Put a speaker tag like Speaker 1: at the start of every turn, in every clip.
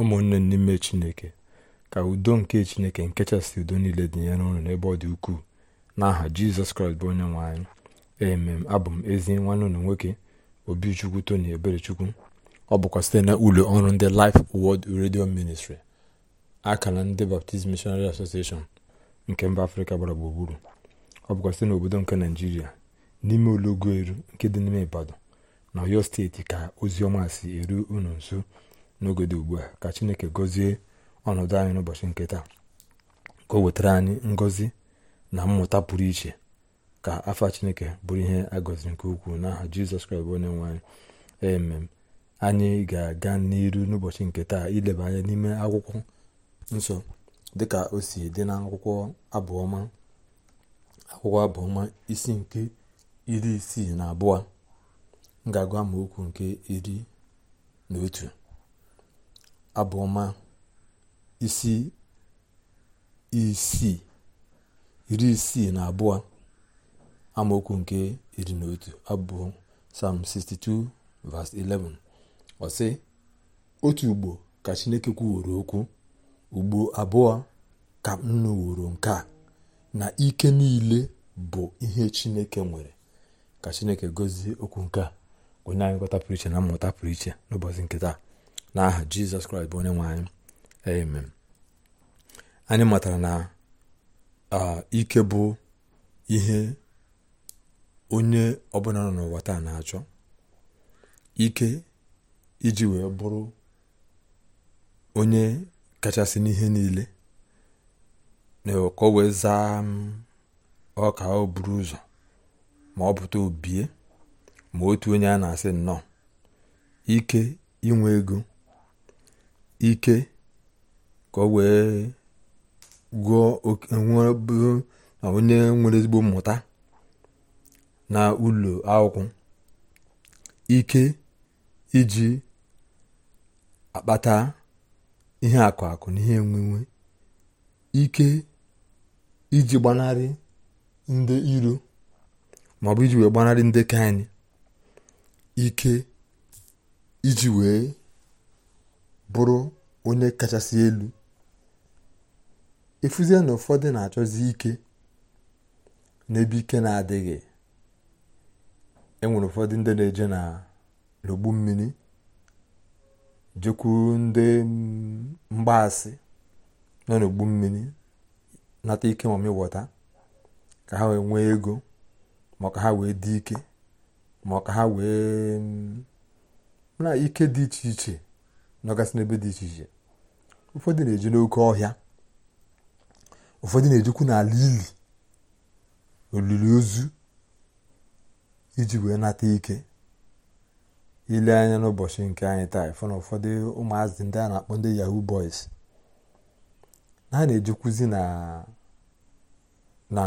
Speaker 1: ụmụnne n'ime chineke ka udo nke chineke nkechasị udo niile dịnyere ụnụ n'ebe ọ dị ukwuu n'aha jizọs kraịst bụ onye nwe anyị emem abụ m ezi nwanne ụlọ nwoke obichukwu tony eberechukwu ọ bụkwa site na ụlọ ọrụ ndị Life Word redio Ministry akara ndị Baptist Missionary Association nke mba afrịka gbara gburugburu ọ bụkwa site n'obodo nke naijiria n'ime ụlọgoelu nke dị n'ime ibadan na oyo steeti ka ozi ọma si eru unu nso n'oge ugbu a ka chineke gọzie ọnọdụ anyị n'ụbọchị nke taa ka o wetara anyị ngọzi na mmụta pụrụ iche ka afa chineke bụrụ ihe agọzi nke ukwuu n'aha jizọs kraịst onye nwe anyị emem anyị ga-aga n'iru n'ụbọchị nke taa ileba anya n'ime akwụkwọ nsọ dịka o si dị na akwụkwọ abụọma akwụkwọ abụọma isi nke iri isii na abụọ m agwa agụ amaokwu nke iri na otu abụọma isi isii iri isii na abụọ amaokwu nke iri na otu abụọ sam 62 v 11 ọsị otu ugbo ka Chineke kwuworo okwu ugbo abụọ ka m nụworo nke na ike niile bụ ihe Chineke nwere ka Chineke gozie okwu nke a onye anyị pụrụ iche na mmụta pụrụ iche n'ụbọchị nke taa n'aha jizọs kraịst bụ onye nwe anyị amen anyị matara na ike bụ ihe onye ọbụla nọ n'ụwa taa na-achọ ike iji wee bụrụ onye kachasị n'ihe niile na o wee zaa ọ ọka o buru ụzọ ma ọ pụta obie ma otu onye a na-asị nnọọ ike inwe ego ike ka o wee gụọ na onye nwere ezigbo mmụta na ụlọ akwụkwọ ike iji akpata ihe akụ akụ na ihe enwenwe ike iji gbanarị ndị iro maọbụ iji wee gbanarị ndị ka ike iji wee bụrụ onye kachasị elu efuzie na ụfọdụ na-achọzi ike n'ebe ike na-adịghị enwere ụfọdụ ndị na-eje na n'ogbu mmiri jekwu ndị mgbaasị nọ n'ogbu mmiri nata ike ma mịwọta ka ha wee nwee ego ma ka ha wee dị ike ma ka ha wee na ike dị iche iche nọgasị n'ebe dị iche iche ụfọdụ na eji n'oke ọhịa ụfọdụ na ejikwu n'ala ili olili ozu iji wee nata ike ile anya n'ụbọchị nke anyị taa ịfụ na ụfọdụ ụmụazị ndị a na-akpọ ndị yahoo boys na ha na-ejekwuzi na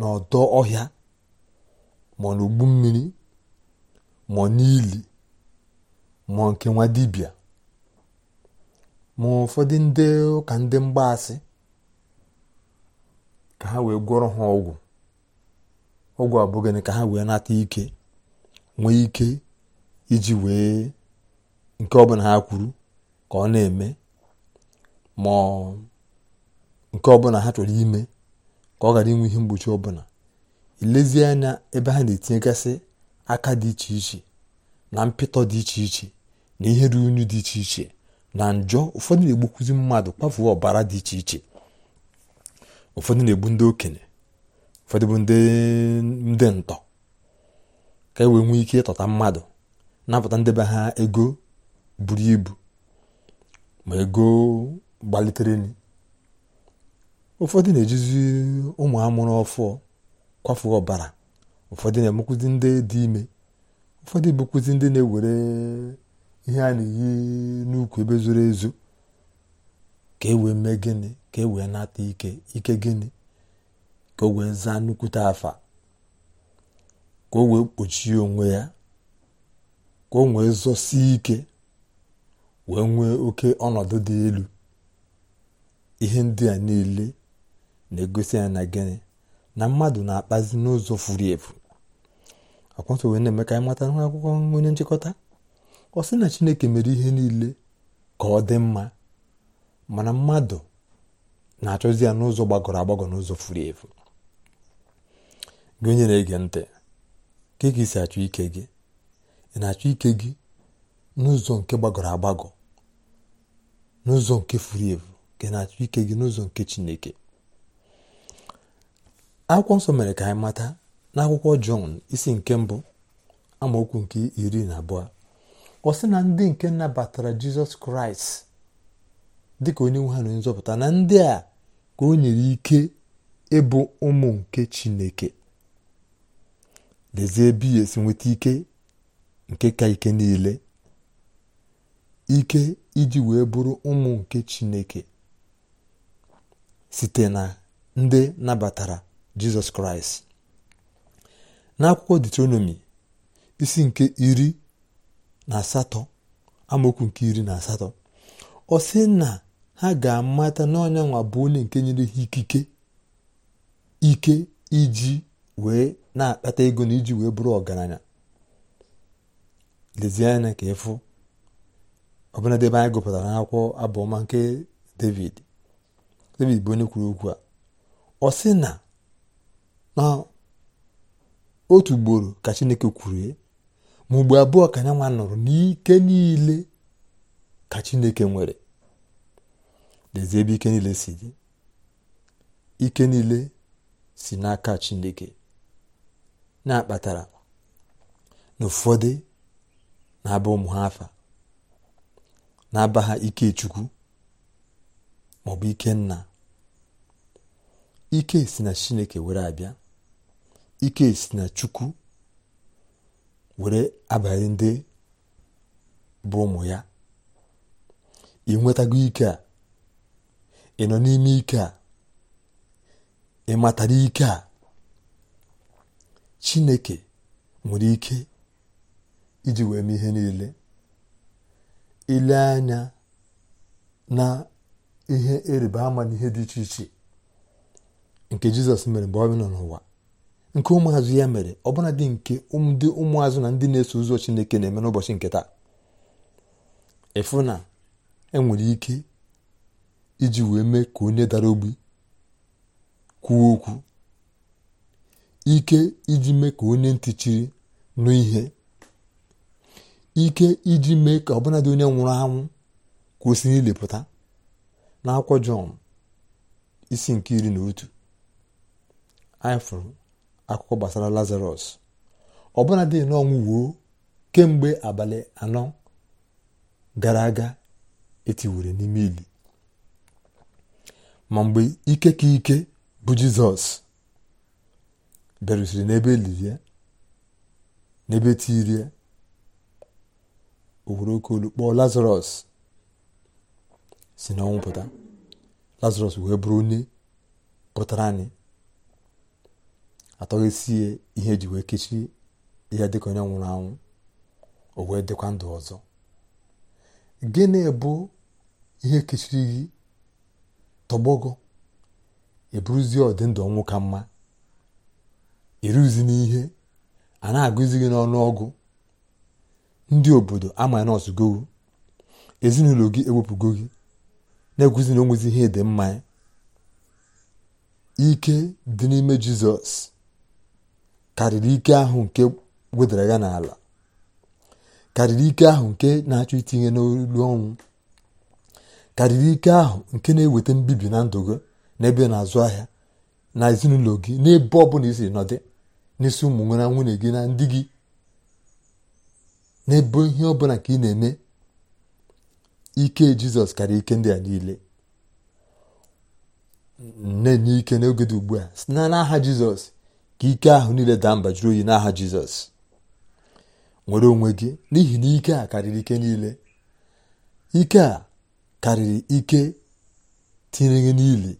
Speaker 1: n'ọdọ ọhịa ma n'ogbu mmiri ma n'ili mụọ nke nwa dibịa ma ụfọdụ ndị ụka ndị mgbaasị ka ha wee gwọrọ ha ọgwụ ọgwụ abụghị ka ha wee nata ike nwee ike iji wee nke ọbụla ha kwuru ka ọ na-eme ma nke ọbụla ha chọrọ ime ka ọ ghara inwe ihe mgbochi ọbụla ilezie anya ebe ha na-etinyegasị aka dị iche iche na mpịtọ dị iche iche na ihe ruru unyu dị iche iche na njọ ụfọdụ na-egbukwuzi mmadụ kpafuo ọbara dị iche iche ụfọdụ na-egbu ndị okenye ụfọdụ bụ ndị ndị ntọ ka e wee nwee ike ịtọta mmadụ napụta ndebe ha ego buru ibu ma ego gbalitere ụfọdụ na-ejizi ụmụ amụrụ ọfụ kwafu ọbara ụfọdụ na-emekwuzi ndị dị ime ụfọdụ ebukwuzi ndị na-ewere ihe a na-eyi n'ukwu ebe zoro ezo ka e wee mee gịnị ka e wee nata ike ike gịnị ka o wee zaa nnukwute afa ka o wee kpochie onwe ya ka o wee zọsie ike wee nwee oke ọnọdụ dị elu ihe ndị a niile na-egosi ya na gịnị na mmadụ na-akpazi n'ụzọ furu efu akwụkwọ nsọ wee na-eme ka anyị mata onye nchịkọta ọ sị na chineke mere ihe niile ka ọ dị mma mana mmadụ na-achọzi ya n'ụzọ gbagọrọ agbagọ n'ụzọ furu efu gị onye na-ege ntị ka ị si achọ ike gị ị na-achọ ike gị n'ụzọ nke gbagọrọ agbagọ n'ụzọ nke furu efu ka ị na-achọ ike gị n'ụzọ nke chineke akwụkwọ nsọ mere ka anyị mata n'akwụkwọ jọn isi nke mbụ amaokwu nke iri na abụọ ọ sị na ndị nke nabatara jizọs kraịst dịka onye nwe ha na nzọpụta na ndị a ka o nyere ike ịbụ ụmụ nke chineke lezie ebe ya esi nweta ike nke ka ike niile ike iji wee bụrụ ụmụ nke chineke site na ndị nabatara jizọs kraịst n'akwụkwọ detronomi isi nke iri na asatọ amaokwu nke iri na asatọ ọ sị na ha ga-amata n'ọnya nwa bụ onye nke nyere ha ikike ike iji wee na-akpata ego na iji wee bụrụ ọgaranya lezie anya ka ịfụ ọbụladị ebe anyị gụpụtara n'akwụkwọ abụọma nke david david bụ onye kwuru okwu a ọ sị na na otu ugboro ka chineke kwuru mgbe abụọ ka nyanwa nụrụ n'ike niile ka chineke nwere lezie ebe ike niile si dị ike niile si n'aka chineke na-akpatara na ụfọdụ na-aba ụmụ ha afa na-aba ha ike chukwu maọbụ ike nna ike si na chineke were abịa ike si na chukwu were abalị ndị bụ ụmụ ya ị nwetago ike a ị nọ n'ime ike a ị matara ike a chineke nwere ike iji wee mee ihe niile ile anya na ihe ịrịba ama n'ihe dị iche iche nke jizọs mere mgbe ọ nọ n'ụwa nke ụmụazụ ya mere ọbụnadị nke ndị ụmụazụ na ndị na-eso ụzọ chineke na-eme n'ụbọchị nke taa ịfụ na enwere ike iji wee mee ka onye dara ogbi kwuo okwu ike iji mee ka onye ntị chiri nụ ihe ike iji mee ka ọbụnadi onye nwụrụ anwụ kwụsị ilepụta n'akwụkwọ jọn isi nke iri na otu anyị akụkọ gbasara lazarus ọbụna dị n'ọnwụ wuo kemgbe abalị anọ gara aga etiwere n'ime ili ma mgbe ike ka ike bụ jizọs bịarusiri n'ebe e lirie n'ebe tirie o were oke olu kpọọ si n'ọnwụ pụta lazarus wee bụrụ onye pụtara anyị atọghesie ihe eji wee kechie ihe dịka onye nwụrụ anwụ o wee dịkwa ndụ ọzọ gịnị bụ ihe kechiri gị tọgbọgọ eburuzie ọdịndụ ọnwụ ka mma iruzi e n'ihe a na-agụzi gị n'ọnụ ọgụ ndị obodo ama nọọsụ gowu ezinụlọ gị ewepụgo gị na-egwuzi na ihe dị mma ike dị n'ime jizọs karịrị ike ahụ nke wedara ya n'ala karịrị ike ahụ nke na-achọ itinye n'olu ọnwụ karịrị ike ahụ nke na-eweta mbibi na ndụ gị n'ebe na-azụ ahịa na ezinụlọ gị n'ebe ọ bụla isiri nọdị n'isi ụmụ nwere nwunye gị na ndị gị n'ebe ihe ọ bụla ka ị na-eme ike jizọs karịa ike ndị a niile na-enye ike n'oge dị ugbu a si na n'aha jizọs ka ike ahụ niile daa mba jụrụ oyi n'aha jizọs nwere onwe gị n'ihi na ike a karịrị ike niile ike a karịrị ike tinyere gị niile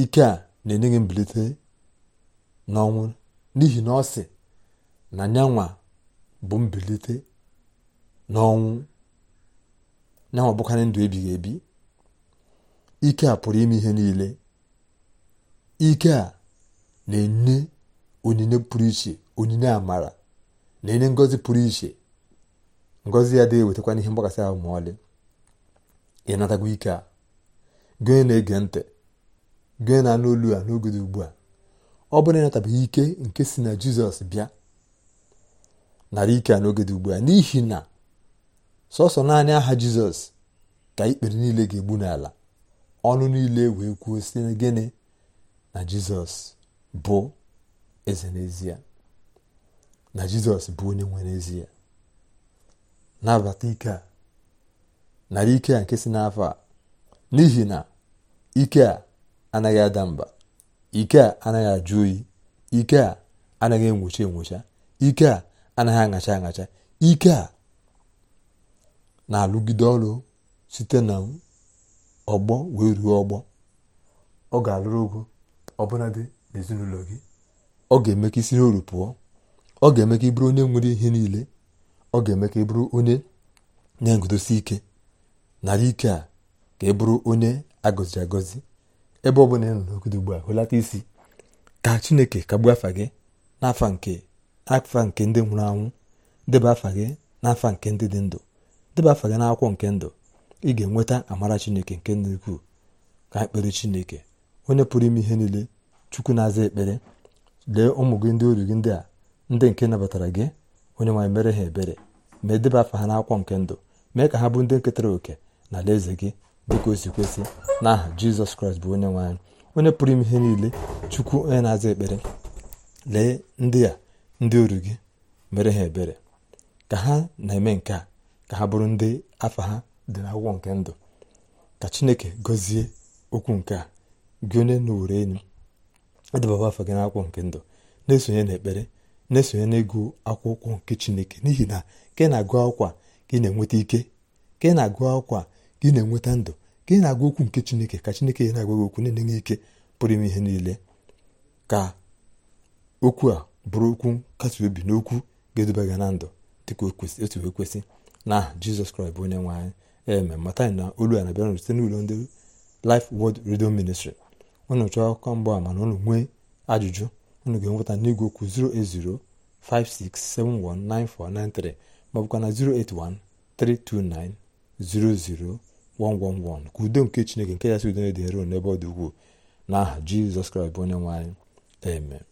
Speaker 1: ike a na-enye gị mbilite n'ọnwụ n'ihi na ọ sị na nyanwa bụ mbilite n'ọnwụ nyanwa bụkarị ndụ ebighị ebi ike a pụrụ ime ihe niile ike a na-enye onyinye pụrụ iche onyinye amara na-enye ngọzi pụrụ iche ngọzi ya dịghị wetakwana ihe mgbakasị ahụ ma ọlị ị natagwa ike a gị na-ege ntị gị na-anụ olu a n'oge dị ugbu a ọ bụrụ ịnatabeghị ike nke si na jizọs bịa nara ike a n'oge dị ugbu a n'ihi na sọsọ naanị aha jizọs ka ikpere niile ga-egbu n'ala ọnụ niile wee kwuo na gịnị na jizọs bụ eze n'ezie na jizọs bụ onye nwe n'ezie nabata ike a nara ike a nke si n'afọ a n'ihi na ike a anaghị ada mba ike a anaghị ajụ oyi ike a anaghị enwocha enwocha ike a anaghị aṅacha aṅacha ike a na-alụgide ọrụ site na ọgbọ wee ruo ọgbọ ọ ga-alụrụ ogo ọbụladị n'ezinụlọ gị ọ ga-eme ka isi n'oru pụọ ọ ga-eme ka ị bụrụ onye nwere ihe niile ọ ga-eme ka ị bụrụ onye na-eguzosi ike narị ike a ka ị bụrụ onye agọziri agọzi ebe ọ bụla ị nọ n'ogodo ugbu a hụlata isi ka chineke kagbuo afa gị n'afa nke afa nke ndị nwụrụ anwụ deba afa gị n'afa nke ndị dị ndụ deba afa gị n'akwụkwọ nke ndụ ị ga-enweta amara chineke nke ndị ukwuu ka ha kpere chineke onye pụrụ ime ihe niile chukwu na-aza ekpere lee ụmụ gị ndị oru gị ndị a ndị nke nabatara gị onye nwaanyị mere ha ebere ma edeba afa ha n'akwụkwọ nke ndụ mee ka ha bụ ndị nketara oke na alaeze gị dịka o si kwesị n'aha jizọs kraịst bụ onye nwaanyị onye pụrụ ime ihe niile chukwu onye na-aza ekpere lee ndị a ndị ori gị mere ha ebere ka ha na-eme nke a ka ha bụrụ ndị afa ha dị n'akwụkwọ nke ndụ ka chineke gọzie okwu nke a gị onye na owere enyi edebaba afọ gị n'akwụkwọ nke ndụ na-esonye n'ekpere na-esonye n'ịgụ akwụkwọ nke chineke n'ihi na ka ị na-agụ akwa ka ị na-enweta ike ka ị na-agụ akwa ka ị na-enweta ndụ ka ị na-agụ okwu nke chineke ka chineke ya na-agwa gị okwu na-enye ike pụrụ ime ihe niile ka okwu a bụrụ okwu nkasi obi n'okwu ga-eduba gị na ndụ dịka otu wee kwesị na aha jizọs kraịst bụ onye nwe anyị eme mata na olu a na-abịara site n'ụlọ ndị lif Word redio Ministry unu chọọ akụkọ ama na unu nwee ajụjụ unu ga-enweta n'igwe okwu 08056719493 maọbụkwa na 08132900111 ka udo nke chineke nke ya si udo na-edere unu n'ebe ọ dị na n'aha jizọs kraịst bụ onye nwanyị. amen